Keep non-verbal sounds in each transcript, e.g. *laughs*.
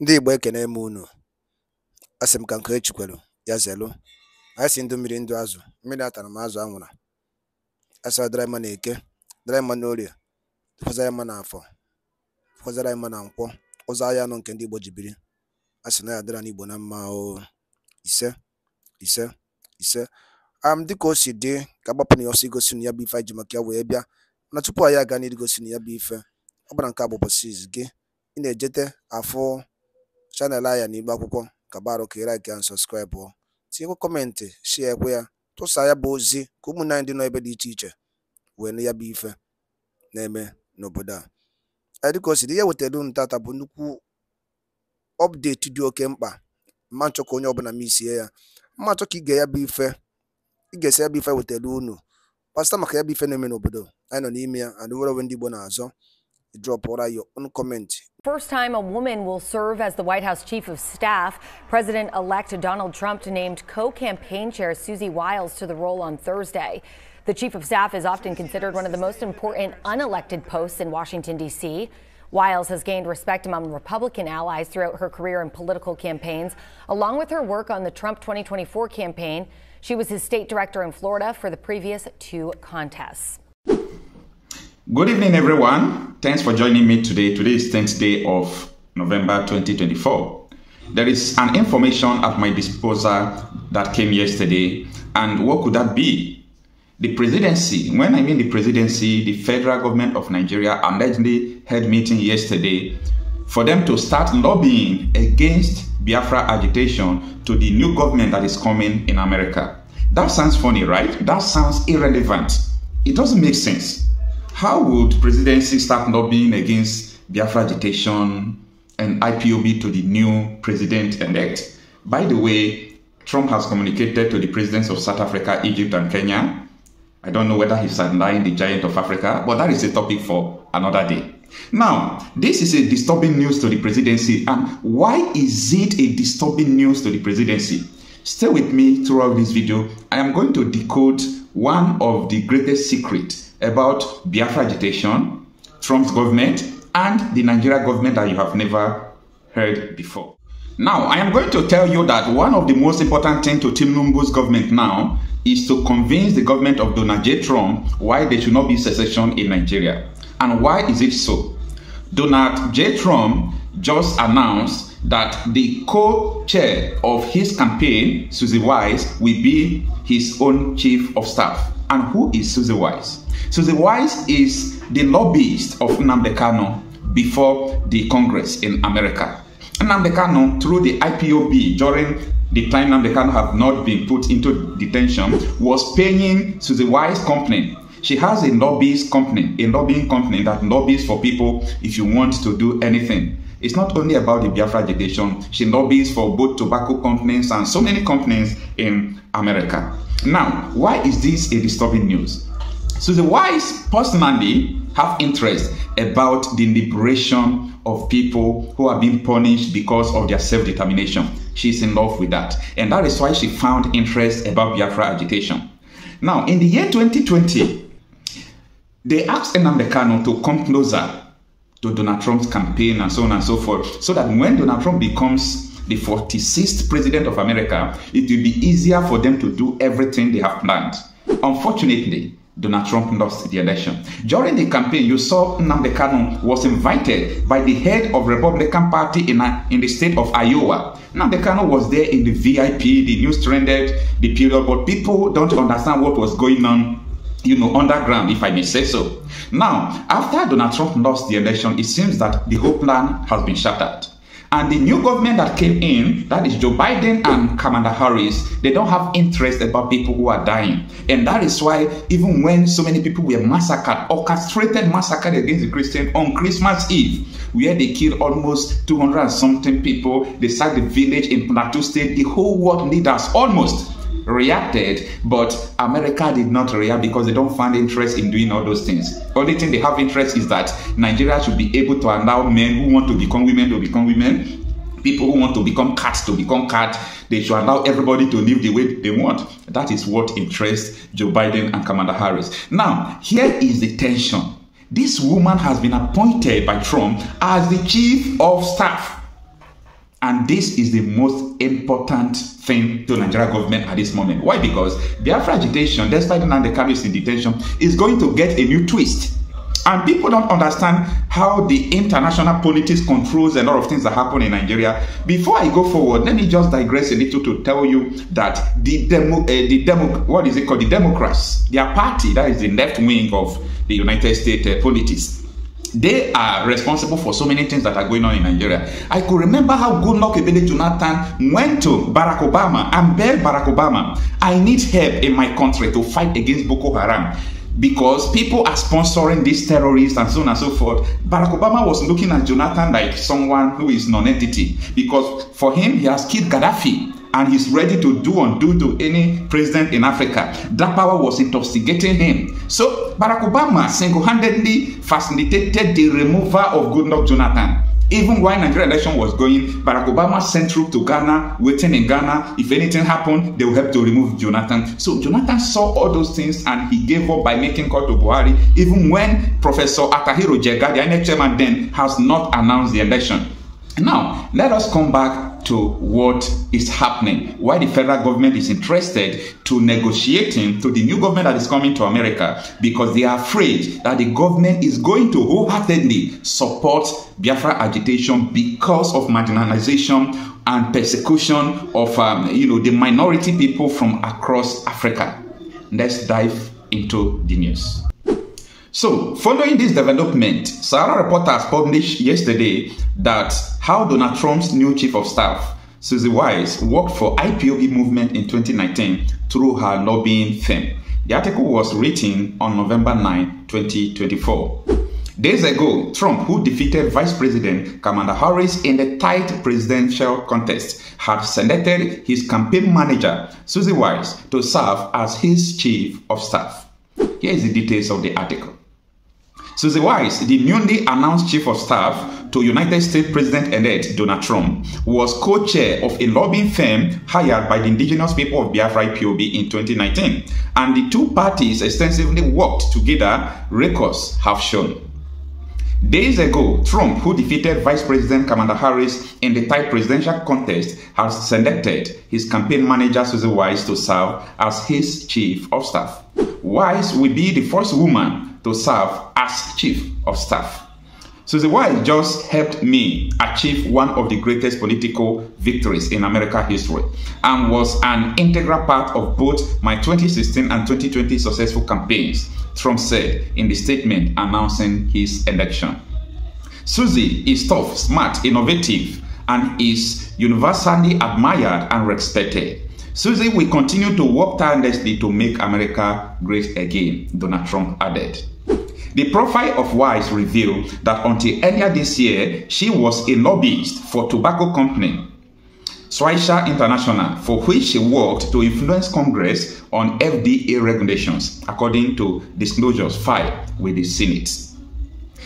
Ndị Igbo ekene m unu, a sị m ka nke e ya zelu. anyị si ndụ mmiri ndụ azụ, mmiri atara m azụ anwụra, a sị ọ dịrị mma n'eke, dịrị mma n'orie, dịkwazịrị mma n'afọ, dịkwazịrị mma na nkwọ, ụzọ ahịa anọ nke ndị Igbo ji biri, a sị na ya n'Igbo na mma o, ise ise ise um dịka o si dị ka agbapụ na ya ọsọ igosi na ya bụ ife anyị ji maka ya wee bịa na tupu anyị aga n'igosi na ya bụ ife ọ bụla nke a bụ ụbọchị gị ị na-ejete afụ chanel Ayan Igbo akwụkwọ kabarụ ka ịraiki and ọ tinyekwa kọmentị shie ekwe ya tụsa ya bụ ozi ka ụmụnne anyị dị nọ ebe dị iche iche wee nụ ya bụ ife na-eme n'obodo a dịka o siri ihe wetara unu tata bụ nnukwu ọpdeti dị oke mkpa ma nchọ ka onye ọbụla m isie ya mma nchọ ka ige ya bụ ife ị esi ya bụ ife wetara unu pasta maka ya bụ ife na-eme n'obodo anyị nọ n'ime ya and nwere onwe ndị Igbo na-azọ drọpụra ya ọnụ kọmentị First time a woman will serve as the White House chief of staff. President elect Donald Trump named co campaign chair Susie Wiles to the role on Thursday. The chief of staff is often considered one of the most important unelected posts in Washington, D.C. Wiles has gained respect among Republican allies throughout her career in political campaigns, along with her work on the Trump 2024 campaign. She was his state director in Florida for the previous two contests. Good evening, everyone. Thanks for joining me today. Today is 10th day of November 2024. There is an information at my disposal that came yesterday, and what could that be? The presidency, when I mean the presidency, the federal government of Nigeria allegedly held meeting yesterday for them to start lobbying against Biafra agitation to the new government that is coming in America. That sounds funny, right? That sounds irrelevant. It doesn't make sense. How would presidency start lobbying against Biafra agitation and IPOB to the new president elect? By the way, Trump has communicated to the presidents of South Africa, Egypt, and Kenya. I don't know whether he's underlying the giant of Africa, but that is a topic for another day. Now, this is a disturbing news to the presidency. And why is it a disturbing news to the presidency? Stay with me throughout this video. I am going to decode one of the greatest secrets about Biafra agitation, Trump's government, and the Nigeria government that you have never heard before. Now, I am going to tell you that one of the most important things to Tim Numbu's government now is to convince the government of Donald J. Trump why there should not be secession in Nigeria. And why is it so? Donald J. Trump just announced that the co-chair of his campaign, Susie Wise, will be his own chief of staff. And who is Susie Wise? Susie Wise is the lobbyist of Nnamdi Kano before the Congress in America. Nnamdi Kano, through the IPOB during the time Nnamdi Kano had not been put into detention, was paying Susie Wise company. She has a lobbyist company, a lobbying company that lobbies for people if you want to do anything. It's not only about the Biafra agitation. She lobbies for both tobacco companies and so many companies in America. Now, why is this a disturbing news? So the wise personally have interest about the liberation of people who are being punished because of their self-determination. She's in love with that. And that is why she found interest about Biafra agitation. Now, in the year 2020, they asked Enamdekano to come closer to Donald Trump's campaign and so on and so forth, so that when Donald Trump becomes the 46th president of America, it will be easier for them to do everything they have planned. Unfortunately, Donald Trump lost the election. During the campaign, you saw Nnamdi Kanu was invited by the head of Republican Party in, a, uh, in the state of Iowa. Nnamdi Kanu was there in the VIP, the news trended, the period, but people don't understand what was going on you know, underground, if I may say so. Now, after Donald Trump lost the election, it seems that the whole plan has been shattered. And the new government that came in, that is Joe Biden and Kamala Harris, they don't have interest about people who are dying. And that is why, even when so many people were massacred, orchestrated massacred against the Christian on Christmas Eve, where they killed almost 200 something people, they sacked the village in Plateau State, the whole world leaders almost reacted, but America did not react because they don't find interest in doing all those things. Only thing they have interest is that Nigeria should be able to allow men who want to become women to become women, people who want to become cats to become cats. They should allow everybody to live the way they want. That is what interests Joe Biden and Kamala Harris. Now, here is the tension. This woman has been appointed by Trump as the chief of staff and this is the most important thing to Nigeria government at this moment. Why? Because Biafra agitation, despite the Kanu is in detention, is going to get a new twist. And people don't understand how the international politics controls a lot of things that happen in Nigeria. Before I go forward, let me just digress a little to tell you that the demo, uh, the demo, what is it called? The Democrats, their party, that is the left wing of the United States uh, politics, they are responsible for so many things that are going on in Nigeria. I could remember how Goodluck Ebele Jonathan went to Barack Obama and begged Barack Obama, I need help in my country to fight against Boko Haram because people are sponsoring these terrorists and so on and so forth. Barack Obama was looking at Jonathan like someone who is non-entity because for him, he has killed Gaddafi. and he's ready to do undo to any president in Africa. That power was intoxicating him. So Barack Obama single-handedly facilitated the removal of Goodluck Jonathan. Even while Nigeria election was going, Barack Obama sent troops to Ghana, waiting in Ghana. If anything happened, they would help to remove Jonathan. So Jonathan saw all those things and he gave up by making call to Buhari, even when Professor Atahiro Jega, the INEC chairman then, has not announced the election. Now, let us come back to what is happening. Why the federal government is interested to negotiating to the new government that is coming to America because they are afraid that the government is going to wholeheartedly support Biafra agitation because of marginalization and persecution of um, you know the minority people from across Africa. Let's dive into the news. So, following this development, Sarah Report has published yesterday that how Donald Trump's new chief of staff, Susie Wise, worked for IPOB movement in 2019 through her lobbying firm. The article was written on November 9, 2024. Days ago, Trump, who defeated Vice President Kamala Harris in the tight presidential contest, had selected his campaign manager, Susie Wise, to serve as his chief of staff. Here is the details of the article. Susie Weiss, the newly announced chief of staff to United States President-elect Donald Trump, was co-chair of a lobbying firm hired by the indigenous people of Biafra POB in 2019, and the two parties extensively worked together, records have shown. Days ago, Trump, who defeated Vice President Kamala Harris in the tight presidential contest, has selected his campaign manager Susie Wise to serve as his chief of staff. Wise will be the first woman to serve as chief of staff. Susie White just helped me achieve one of the greatest political victories in American history and was an integral part of both my 2016 and 2020 successful campaigns, Trump said in the statement announcing his election. Susie is tough, smart, innovative, and is universally admired and respected. Susie will continue to work tirelessly to make America great again, Donald Trump added. The profile of Wise revealed that until earlier this year, she was a lobbyist for tobacco company Swisha International, for which she worked to influence Congress on FDA regulations, according to disclosures filed with the Senate.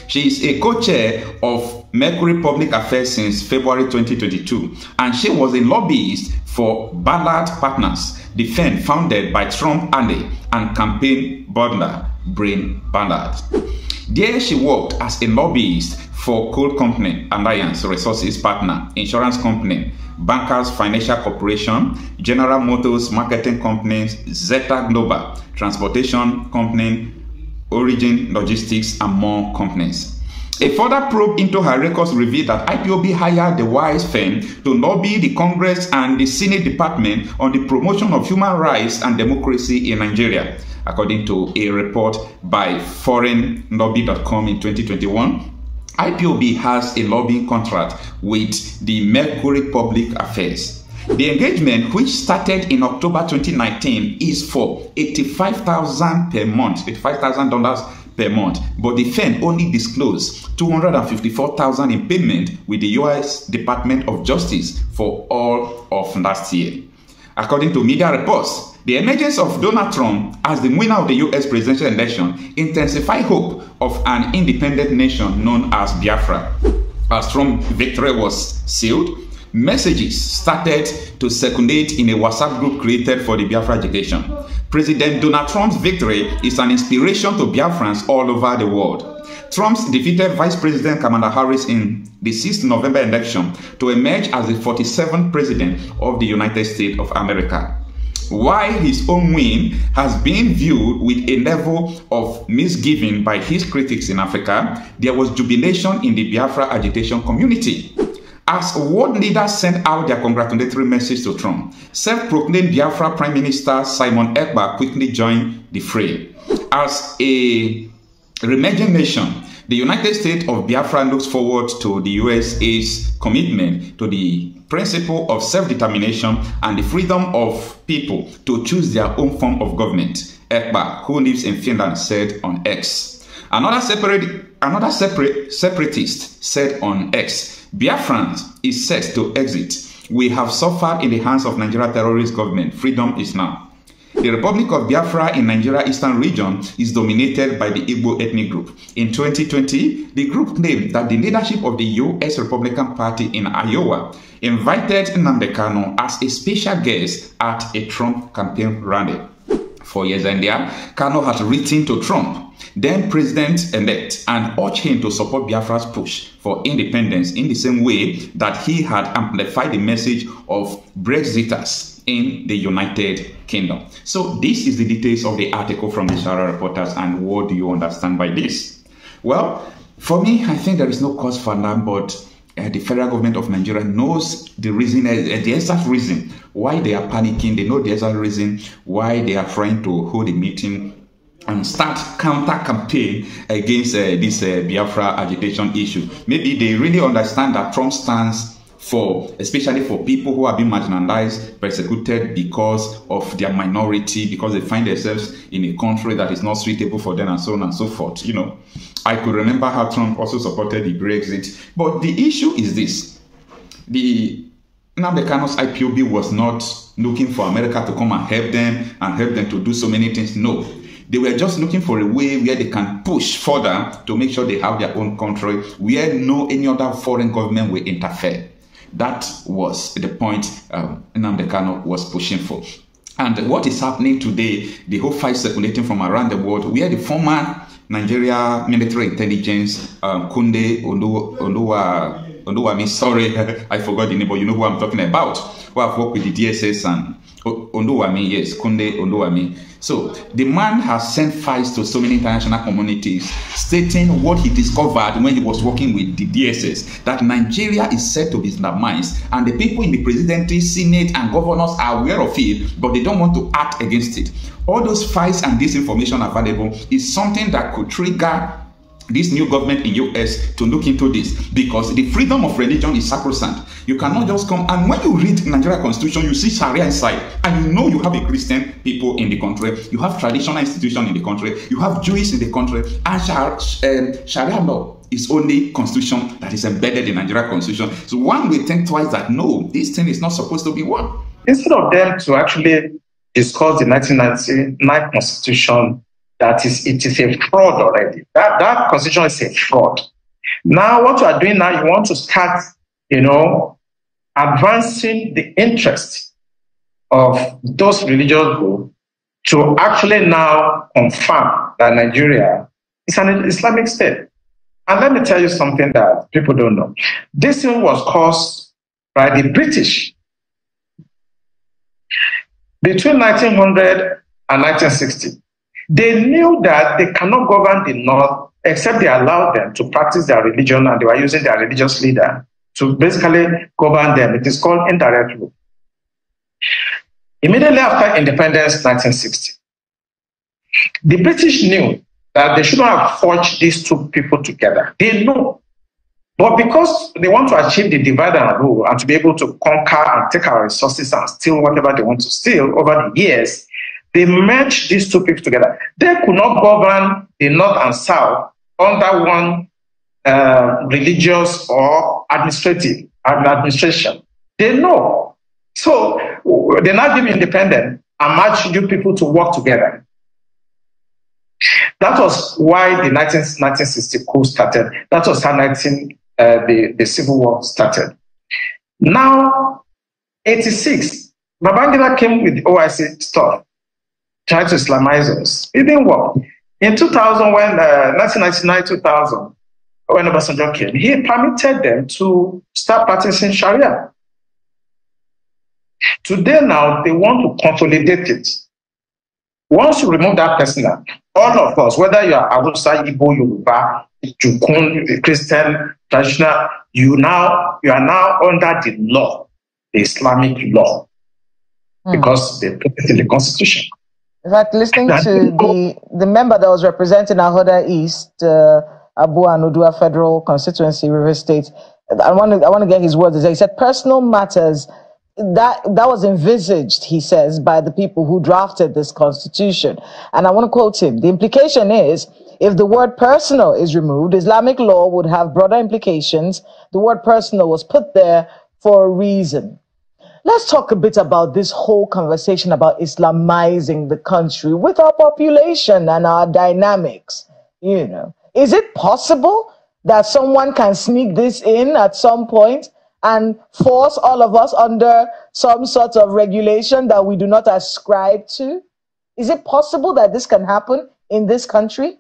She is a co-chair of Mercury Public Affairs since February 2022, and she was a lobbyist for Ballard Partners, the firm founded by Trump Alley and campaign butler Brain Ballard. There she worked as a lobbyist for coal company Alliance Resources Partner, insurance company, Bankers Financial Corporation, General Motors Marketing Company, Zeta Global, Transportation Company, Origin Logistics, and more companies. A further probe into her records revealed that IPOB hired the WISE firm to lobby the Congress and the Senate Department on the promotion of human rights and democracy in Nigeria, according to a report by foreignlobby.com in 2021. IPOB has a lobbying contract with the Mercury Public Affairs. The engagement, which started in October 2019, is for $85,000 per month, $85,000 per month. But the firm only disclosed 254,000 in payment with the US Department of Justice for all of last year. According to media reports, the emergence of Donald Trump as the winner of the US presidential election intensified hope of an independent nation known as Biafra. As Trump's victory was sealed, messages started to circulate in a WhatsApp group created for the Biafra agitation. President Donald Trump's victory is an inspiration to Biafrans all over the world. Trump's defeated Vice President Kamala Harris in the 6th November election to emerge as the 47th President of the United States of America. While his own win has been viewed with a level of misgiving by his critics in Africa, there was jubilation in the Biafra agitation community as world leaders sent out their congratulatory message to Trump, self-proclaimed Biafra Prime Minister Simon Ekba quickly joined the fray. As a emerging nation, the United States of Biafra looks forward to the USA's commitment to the principle of self-determination and the freedom of people to choose their own form of government, Ekba, who lives in Finland, said on X. Another separate another separate separatist said on X, Biafran is set to exit. We have suffered in the hands of Nigeria terrorist government. Freedom is now. The Republic of Biafra in Nigeria Eastern region is dominated by the Igbo ethnic group. In 2020, the group claimed that the leadership of the U.S. Republican Party in Iowa invited Nnamdi as a special guest at a Trump campaign rally four years earlier, there, Kano had written to Trump, then President elect, and urged him to support Biafra's push for independence in the same way that he had amplified the message of Brexiters in the United Kingdom. So, this is the details of the article from the Shara reporters, and what do you understand by this? Well, for me, I think there is no cause for alarm, but uh, the federal government of Nigeria knows the reason, uh, the exact reason why they are panicking. They know the exact reason why they are trying to hold a meeting and start counter campaign against uh, this Biafra agitation issue. Maybe they really understand that Trump stands for especially for people who have been marginalized, persecuted because of their minority, because they find themselves in a country that is not suitable for them, and so on and so forth. You know, I could remember how Trump also supported the Brexit. But the issue is this: the Nambekano's IPOB was not looking for America to come and help them and help them to do so many things. No, they were just looking for a way where they can push further to make sure they have their own country where no any other foreign government will interfere that was the point um, Namdekano was pushing for. And what is happening today, the whole fight circulating from around the world, where the former Nigeria military intelligence, um, Kunde Oluwa although I mean, sorry, *laughs* I forgot the name, but you know who I'm talking about, who I've worked with the DSS and Onduwami, yes, Kunde Onduwami. So the man has sent files to so many international communities stating what he discovered when he was working with the DSS that Nigeria is set to be undermined, and the people in the presidency, senate, and governors are aware of it, but they don't want to act against it. All those files and this information available is something that could trigger this new government in US to look into this because the freedom of religion is sacrosanct. You cannot just come and when you read Nigeria constitution, you see Sharia inside, and you know you have a Christian people in the country, you have traditional institution in the country, you have Jews in the country, and Sharia, um, Sharia law is only constitution that is embedded in Nigeria constitution. So one will think twice that no, this thing is not supposed to be one. Instead of them to actually discuss the 1999 constitution that is it is a fraud already. That that constitution is a fraud. Now what you are doing now, you want to start, you know, advancing the interest of those religious groups to actually now confirm that Nigeria is an Islamic state. And let me tell you something that people don't know. This thing was caused by the British. Between 1900 and 1960, they knew that they cannot govern the North except they allowed them to practice their religion and they were using their religious leader to basically govern them. It is called indirect rule. Immediately after independence, 1960, the British knew that they shouldn't have forged these two people together. They know. But because they want to achieve the divide and rule and to be able to conquer and take our resources and steal whatever they want to steal over the years, they merged these two people together. They could not govern the North and South under one uh, religious or administrative administration. They know. So they're not independent and match you people to work together. That was why the 19, 1960 coup started. That was how 19, uh, the, the Civil War started. Now, 86, Babangida came with OIC stuff try to Islamize us. It didn't work. In 2000, when uh, 1999-2000, when Obasanjo came, he permitted them to start practicing Sharia. Today now, they want to consolidate it. Once you remove that person, all of us, whether you are Awusa, Igbo, Yoruba, Jukun, Christian, traditional, you now you are now under the law, the Islamic law, mm. because they put it in the constitution. In fact, listening to the, the member that was representing Ahoda East, uh, Abu Anudua Federal Constituency, River State, I want to I want to get his words. He said personal matters that that was envisaged, he says, by the people who drafted this constitution. And I want to quote him. The implication is if the word personal is removed, Islamic law would have broader implications. The word personal was put there for a reason. Let's talk a bit about this whole conversation about Islamizing the country with our population and our dynamics. You know, is it possible that someone can sneak this in at some point and force all of us under some sort of regulation that we do not ascribe to? Is it possible that this can happen in this country?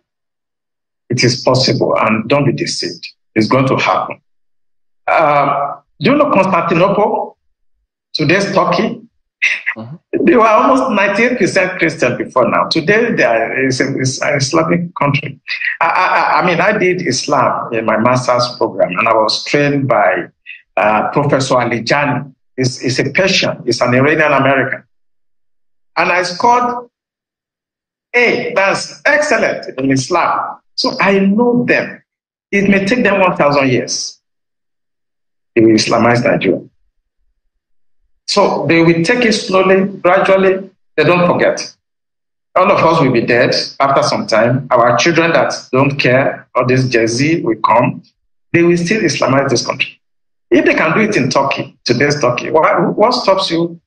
It is possible, and don't be deceived. It's going to happen. Uh, do you know Constantinople? Today's Turkey, Mm-hmm. They were almost 98% Christian before now. Today, they are it's, it's an Islamic country. I, I, I, mean, I did Islam in my master's program, and I was trained by uh, Professor Ali He's, he's a Persian, he's an Iranian American. And I scored A. That's excellent in Islam. So I know them. It may take them 1,000 years to Islamize Nigeria. So they will take it slowly, gradually. They don't forget. All of us will be dead after some time. Our children that don't care, or this Gen will come. They will still Islamize this country. If they can do it in Turkey, today's Turkey, why, what stops you?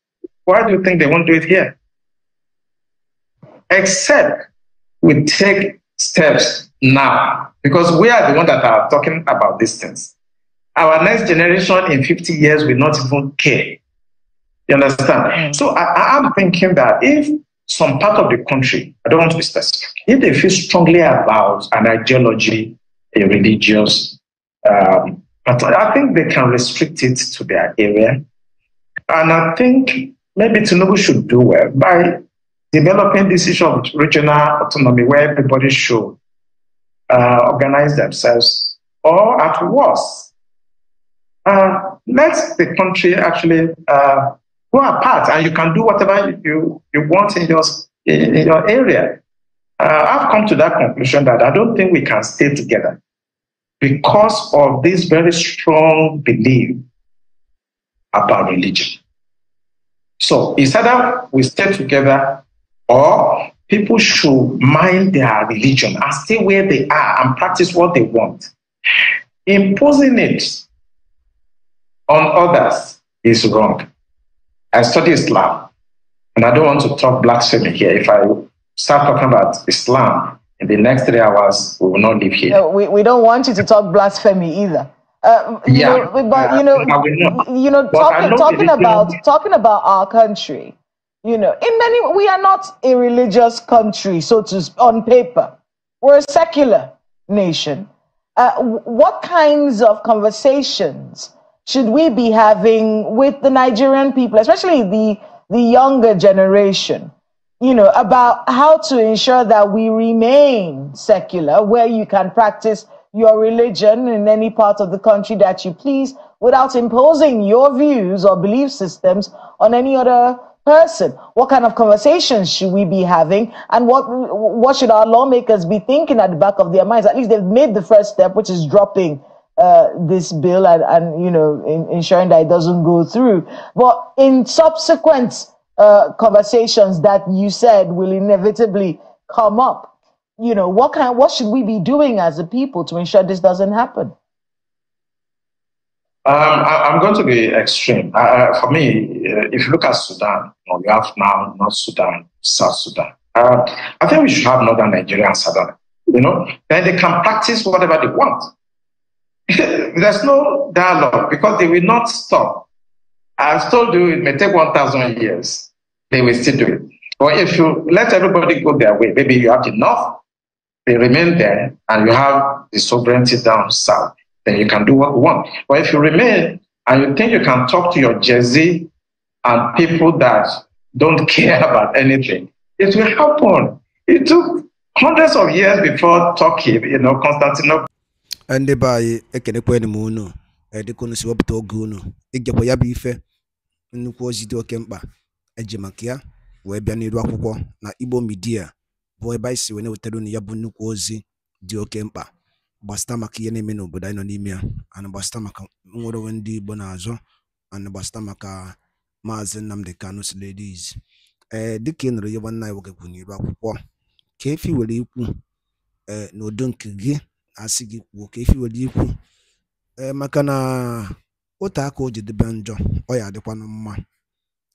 Why do you think they won't do it here? Except we take steps now, because we are the ones that are talking about these things. Our next generation in 50 years will not even care you understand? Mm. So I, I'm thinking that if some part of the country, I don't want to be specific, if they feel strongly about an ideology, a religious, um, but I think they can restrict it to their area. And I think maybe Tinubu should do well by developing this issue of regional autonomy where everybody should uh, organize themselves or at worst, uh, let the country actually uh, Go apart and you can do whatever you, you want in your, in, your area. Uh, I've come to that conclusion that I don't think we can stay together because of this very strong belief about religion. So it's either we stay together or people should mind their religion and stay where they are and practice what they want. Imposing it on others is wrong. I study Islam, and I don't want to talk blasphemy here. If I start talking about Islam in the next three hours, we will not live here. No, we, we don't want you to talk blasphemy either. Uh, yeah, you know, but you know, you know, talking, talking about talking about our country, you know, in many we are not a religious country, so to on paper, we're a secular nation. Uh, what kinds of conversations should we be having with the Nigerian people, especially the, the younger generation, you know, about how to ensure that we remain secular, where you can practice your religion in any part of the country that you please without imposing your views or belief systems on any other person? What kind of conversations should we be having? And what, what should our lawmakers be thinking at the back of their minds? At least they've made the first step, which is dropping uh, this bill and, and you know in, ensuring that it doesn't go through. But in subsequent uh, conversations that you said will inevitably come up, you know what kind what should we be doing as a people to ensure this doesn't happen? Um, I, am going to be extreme. Uh, for me, uh, if you look at Sudan, you, know, you have now North Sudan, South Sudan. Uh, I think we should have Northern Nigeria and Sudan. You know, then they can practice whatever they want. *laughs* there's no dialogue because they will not stop. I've told you it may take 1,000 years. They will still do it. But if you let everybody go their way, maybe you have enough, they remain there, and you have the sovereignty down south, then you can do what you want. But if you remain and you think you can talk to your Jersey and people that don't *laughs* care about anything, it will happen. It took hundreds of years before Turkey, you know, Constantinople. ndị be anyị ekenekwenu m unu dịka unu si wepụta oge unu igekwa ya bụ ife nnukwu ozi dị oke mkpa eji maka ya wee bịa n'iru akwụkwọ na Igbo midia bụ ebe anyị si wee na-ewetara unu ya bụ nnukwu ozi dị oke mkpa gbasịta maka ihe na-eme n'obodo anyị nọ n'ime ya ana gbasịta maka nwere onwe ndị Igbo na-azọ ana gbasịta maka maazị Nnamdi Kanu Siliris ee eh, dịka ị nụrụ ya nwanne anyị nwoke kwụ n'iru akwụkwọ ka efi were ikwu ee eh, n'udo nke gị asị gị kwuo ka efi were ikwu ee maka na otu aka o jedebe njọ ọ ya adịkwanụ mma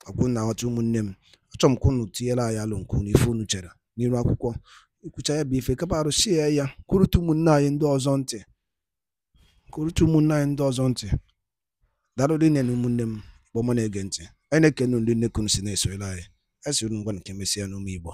ọkwụ na aghọta ụmụnne m achọrọ m ka unu tinyere anyị alụ nke unu ife unu chere n'iru akwụkwọ ikwucha ya bụ ife kapa arụsi ya ya kwurute ụmụnne anyị ndị ọzọ ntị kwurute ụmụnne anyị ndị ọzọ ntị daalụrụ nne na ụmụnne m kpọmọ na-ege ntị anyị na-ekene ndị nnekunu si na-esonyere anyị esiri ngwa nke mesịa n'ụmụ igbo